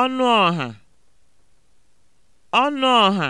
ọnụ ọha ọnụ ọha